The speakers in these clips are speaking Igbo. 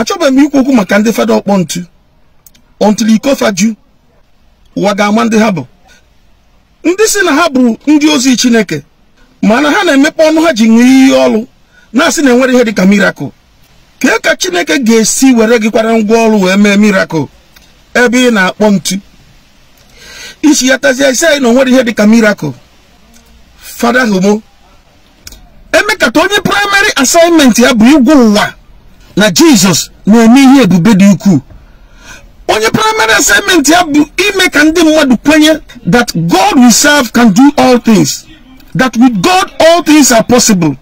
achọbeghị m ikwu okwu maka ndị fada ọkpọ ntu ọntụl ikofa ju ụwa ga-ama ndị ha bụ ndị si na ha bụrụ ndị ozi chineke mana ha na-emepe ọnụ ha ji ṅụọ ihe ọlụ na-asị na enwere ihe dịka mirakụl kee ka chineke ga-esi were gị kwara ngwa ọrụ wee mee mirakụl ebe ị na-akpọ ntu isi ya tazie isi anyị na onwere ihe dịka mirakụl fada homo emekata onye praịmarị asaịmentị ya bụ igwu ụwa na Jesus na-eme ihe ebube dị ukwuu onye praịmarị asaịmentị ya bụ ime ka ndị mmadụ kwenye that god we serve can do all things that with god all things are possible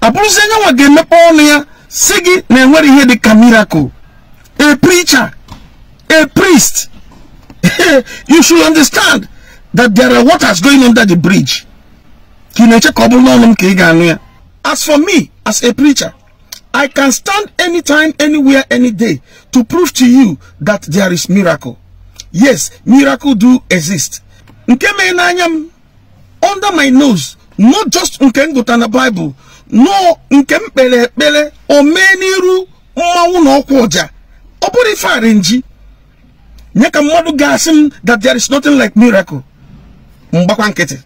abụrụzi nwa ga-emepe ọnụ ya si gị na enwere ihe dị ka miracle a preacher a priest you should understand that there are waters going under the bridge ka ị na-eche ka ọ bụrụ n'ọnụ m ka ị ga-anụ ya as for me as a preacher I can stand anytime, anywhere, any day to prove to you that there is miracle. Yes, miracle do exist. Under my nose, not just nke Nkengotana Bible, no Nkempele Pele, or many ru Mawuno Kwaja. nye Farenji. Nyaka mwadu m that there is nothing like miracle. mgbakwa nkịtị.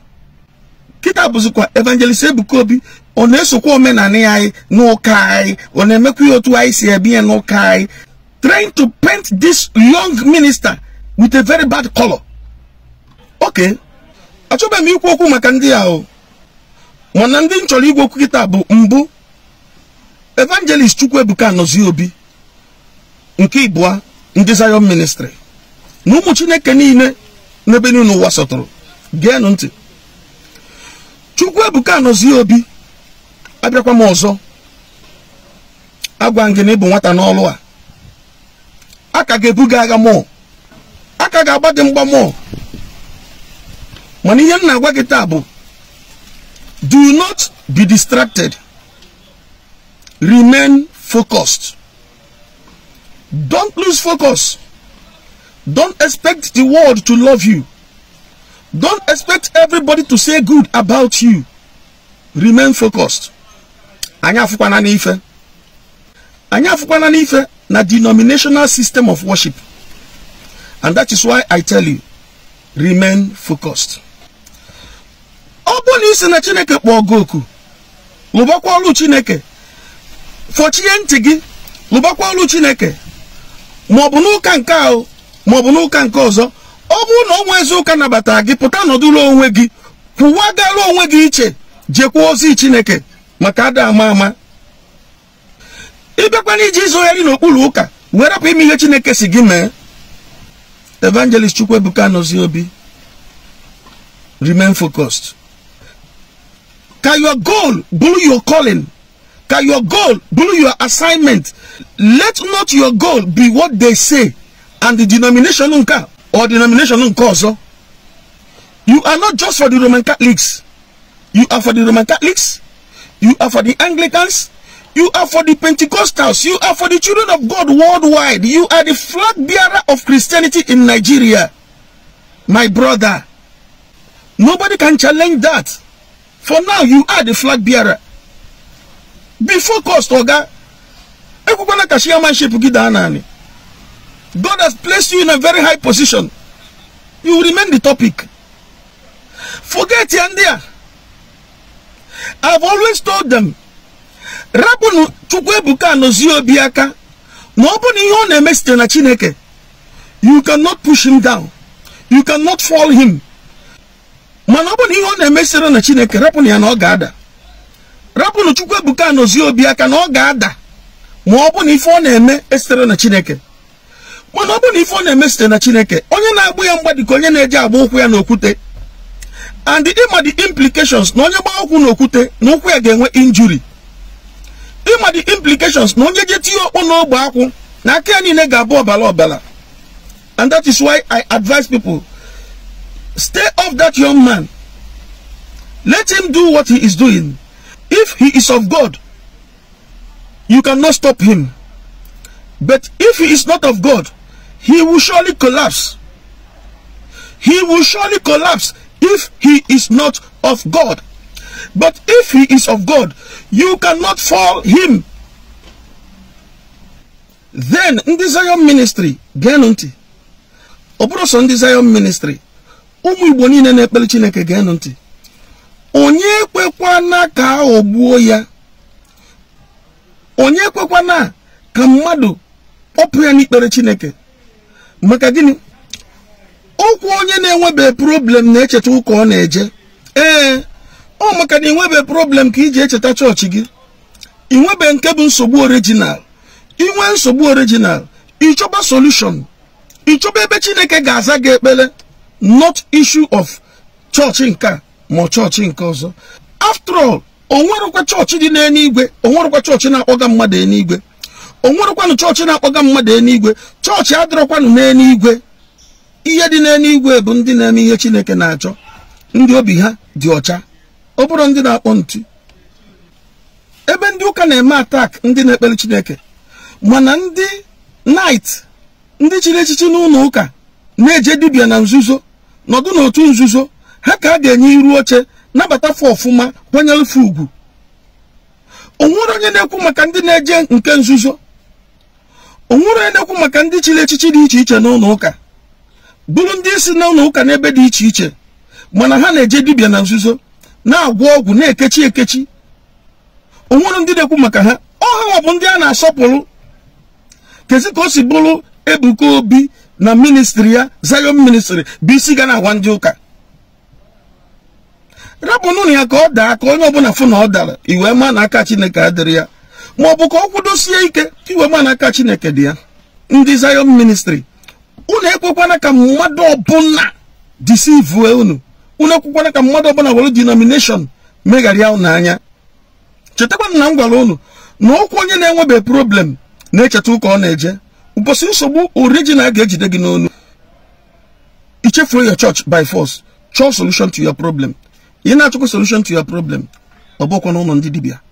Kita abuzukwa evangelist Ebukobi ọ na-esokwa omenanị anyị n'ụka anyị ọ na-emekwa otu anyị si ebi ya n'ụka anyị trying to paint this young minister with a very bad color oke Achọba m ikwu okwu maka ndị ahụ mana ndị nchọrọ chọrọ igwe okwu kịta bụ mbụ evangelist chukwuebuka anọzi obi nke ịbụa ndị zion ministry na ụmụ chineke niile n'ebe niile ụwa sọtụrụ geenụ ntị chukwuebuka obi abịakwa m ọzọ agwa gị na ịbụ nwata n'ọlụ a aka ga-ebuga agha mọọ aka ga-agba dị mgba mọọ mana ihe m na-agwa gị taa bụ do not be distracted remain focused don't lose focus don't expect the world to love you don't expect everybody to say good about you remain focused anyị afụkwana n'ife anyị afụkwana n'ife na denominational system of worship and that is why i tell you remain focused ọ bụ na isi na chineke kpọọ gị oku lụbakwa ọlụ chineke fọchie ntị gị lụbakwa ọlụ chineke maọbụ n'ụka nke ahụ maọbụ n'ụka nke ọzọ ọ bụrụ na ọnwa ezi ụka nabatara gị pụta nọdụrụ onwe gị kwụwagara onwe gị iche jekwa ozi chineke maka ada ama ama ịbịakwana iji izogharị n'okpuru ụka wee rapụ ime ihe chineke si gị mee evangelist chukwuebuka nọzi obi remain focused ka your goal bụrụ your calling ka your goal bụrụ your assignment let not your goal be what they say and the denomination nke or denomination nke ọzọ you are not just for the roman catholics you are for the roman catholics You are for the Anglicans. You are for the Pentecostals. You are for the children of God worldwide. You are the flag bearer of Christianity in Nigeria. My brother. Nobody can challenge that. For now, you are the flag bearer. Before focused, Oga. God has placed you in a very high position. You remain the topic. Forget Yandia. I've always told them rapụnụ Chukwuebuka Anọzie Obi aka na ọ bụ na ihe ọ na-eme site na Chineke you cannot push him down you cannot fall him mana ọ bụ na ihe ọ na-eme sitere na Chineke rapụnụ ya na ọ ga-ada rapụnụ Chukwuebuka Anọzie Obi aka na ọ ga-ada ma ọ bụ na ife ọ na-eme esitere na Chineke mana ọ bụ na ife ọ na-eme site na Chineke onye na-agbụ ya mgbadi ka onye na-eji agba ụkwụ ya n'okwute and the ịma the implications na onye gbaa ụkwụ n'okwute na ụkwụ ya ga-enwe injury ịma the implications na onye je tinye okpu n'ogbe akwụ na aka ya niile ga-abụ ọbara ọbara and that is why i advise people stay off that young man let him do what he is doing if he is of god you cannot stop him but if he is not of god he will surely collapse he will surely collapse if he is not of God. But if he is of God, you cannot fall him. Then, ndị Zion ministry, geenụ ntị. Ọ bụrụ sọ ndị Zion ministry, ụmụ Igbo niile na-ekpere Chineke geenụ ntị. Onye na ka aghọgbuo ya. Onye na ka mmadụ kpọpụ ya n'ikpere Chineke. Maka gịnị? ọkwa onye na-enwebe problem na-echeta ụka ọ na-eje ee ọ maka na inwebe problem ka iji echeta chọọchị gị ịnwebe nke bụ nsogbu original inwe nsogbu original ịchọba solution ịchọba ebe chineke ga-aza gị ekpere not issue of chọọchị nke ma chọọchị nke ọzọ after all onwerụkwa chọọchị dị n'eluigwe onwerụkwa chọọchị na-akpọga mmadụ eluigwe onwerụkwanụ chọọchị na-akpọga mmadụ eluigwe chọọchị adịrọkwanụ n'eluigwe ihe dị igwe bụ ndị na-eme ihe Chineke na-achọ ndị obi ha dị ọcha ọ bụrụ ndị na-akpọ ntu ebe ndị ụka na-eme atak ndị na-ekpere Chineke mana ndị nait ndị chiri echichi n'ụlọ ụka na-eje dibia na nzuzo nọdụ n'otu nzuzo ha ka a ga-enye iru oche nabata ọfụma kwanyere fa ugwu onwere onye na-ekwu maka ndị na-eje nke nzuzo onwere onye na-ekwu maka ndị chiri echichi dị iche iche n'ụlọ ụka bụrụ ndị isi na ụlọ ụka n'ebe dị iche iche mana ha na-eje dibịa na nzuzo na-agwọ ọgwụ na-ekechi ekechi onwere ndị na-ekwu maka ha ọha bụ ndị a na-asọpụrụ kezi ka o si bụrụ Ebuka Obi na ministri ya Zion ministri bụ isi ga na-agwa ndị ụka rapụnụnụ ya ka ọ daa ka onye ọbụla fụ na ọ dara iwe ma na aka Chineke adịrị ya maọbụ ka ọ kwudosie ike iwe ma na aka Chineke dị ya ndị zayon ministri unu ekwekwana ka mmadụ ọbụla disivue unu unu ekwekwana ka mmadụ ọbụla were denomination megharịa unu anya chetakwa na m gwara unu na ụkwụ onye na-enwebe problem na-echeta ụka ọ na-eje ụbọchị nsogbu original ga-ejide gị n'onu ichefuo ya church by force chọọ solution to your problem ị na-achọkwa solution to ya problem ọ bụkwa na ụlọ ndị dibịa